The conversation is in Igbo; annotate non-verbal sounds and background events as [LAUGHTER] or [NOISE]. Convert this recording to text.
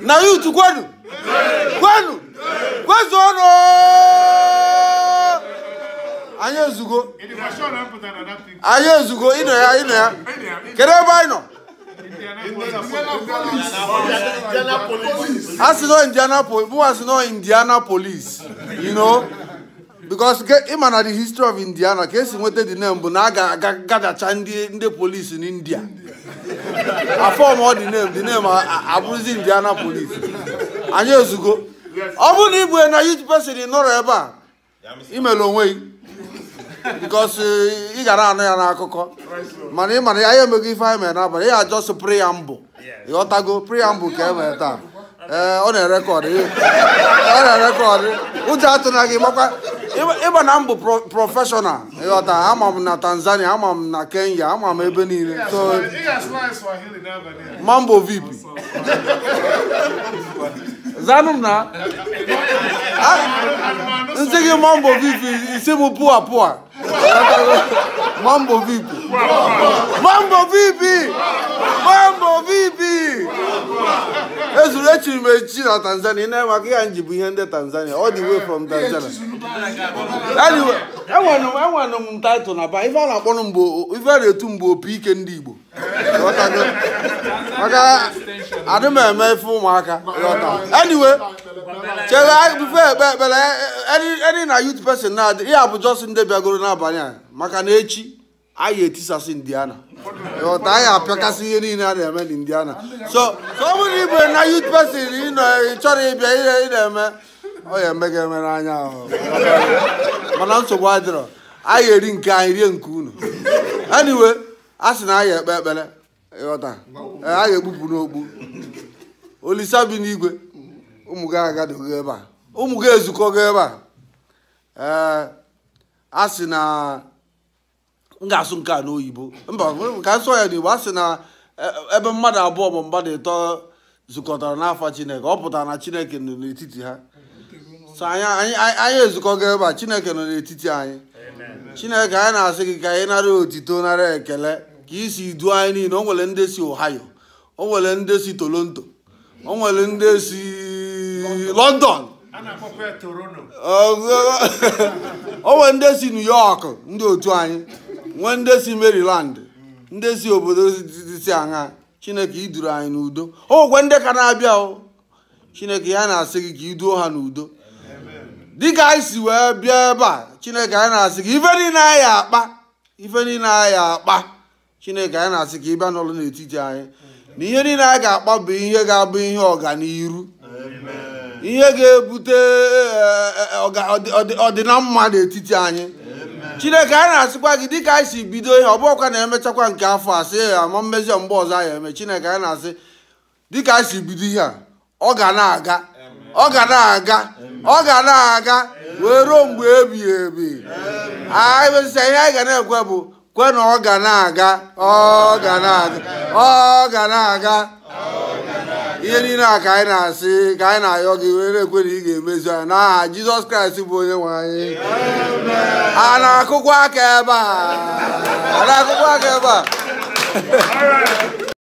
na yutu kwenu kwenu kwezuonụ anyị ezugo anyị ezugo ịnọ ya ịnọ ya kedu ebe anyị nọ a sị nọ indianapolis nọ indianapolis you know because ịma na the history of indiana ka esi nweta the name bụ na a ga-agadacha ndị polisi n'india afọm ọ dị name dị uh, uh, indiana polis anyị ezugo ọ bụrụ na ị bụ na youth person nọrọ ebe a imere onwe gị because uh, ị gara anụ ya n'akụkọ mana ị mana ya ya emeghị ife anyị mere n'abalị ya ajọsụ preambụ ịghọtago preambụ ka e mere taa ee ọ na-erekọdụ ọ na-erekọdụ ụjọ atụna gị gbakwa ịba na m bụ prọfeshọnal ịghọta ama m na tanzania ama m na kenya ama m ebe niile mambo vip zanụ m na [LAUGHS] ah, nsị gị mambo vip isi m pụa pụa mambo vip mambo vip ezuru echiri m na tanzania na maka ihe nji bụ ihe ndị tanzania all the way from tanzania enwere m taịtụl na ba ife a na akpọ mgbe ife a na-etu mgbe opi ike ndị igbo maka adị eme ife ụmụaka anyway na youth person na-adị ihe a n'abalị a maka na echi anyị etisasị indiana ghọta anyị apịakasị ihe niile a na-eme n'indiana so so ọ bụrụ ibe na youth person ị nọ ị chọrọ ịbịa ihe ị na-eme ọ ya eme gị eme n'anya ahụ mana nsogbu adịrọ anyị eri nke anyị rie nke unu anyway a sị na anyị ekpe ekpere ịghọta ghọta anyị ekpupu n'okpu olisa bi n'igwe ụmụ gị agadoghị ebe a ụmụ gị ezukọ gị ebe a ee a sị na m ga-asụ nke a n'oyibo mba ka nsọ ya n'igbo a sị na e, e, ebe mmadụ abụọ bụ mmadụ ịtọ zukọtara n'afọ chineke ọ pụtara na chineke nọ n'etiti ha so anyị anyị ezukọgo ebe a chineke nọ n'etiti anyị chineke anyị na-asị gị ka anyị nara otito nara ekele ka isi duo anyị niile o nwere ndị si ohio o nwere ndị si toronto o nwere ndị si london o nwere ndị si new york ndị otu anyị nwee ndị si Maryland ndị si obodo dịsị aṅa chineke iduru anyị n'udo ogwe ndị ka na-abịa o chineke ya na-asị gị ka iduo ha n'udo dịka anyị si wee bịa ebe a chineke anyị na-asị gị ife niile anyị akpa ife niile anyị akpa chineke anyị na-asị ka ịbịa n'ụlọ n'etiti anyị na ihe niile anyị ga-akpa bụ ihe ga-abụ ihe ọganiru ihe ga-ebute eh, eh, eh, ọdịna mma n'etiti anyị chineke a na-asịkwa gị dịka anyị si bido ihe ọ bụọkwa na emechakwa nke afọ a sị ya ma mmezi mgbe ọzọ anyị eme chineke a na-asị dịka anyị si bido ihe a ọ ga na-aga ọ ga na-aga ọ ga na-aga wee ruo mgbe ebighị ebi anyị ihe anyị ga na-ekwe bụ kwe na ọ ga na-aga ọ ga na-aga ọ ga na-aga ihe niile a ka anyị na-asị ka anyị na-ayọ gị wee na-ekwe na ị ga-emezu anyị n'aha jizọs kraịst bụ onye nwe anyị a na-akụkwa aka ebe a a na-akụkwa aka ebe a